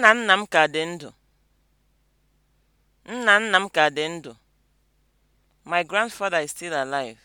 Nna nna m ka dị ndụ. Nna nna m ka dị ndụ. My grandfather is still alive.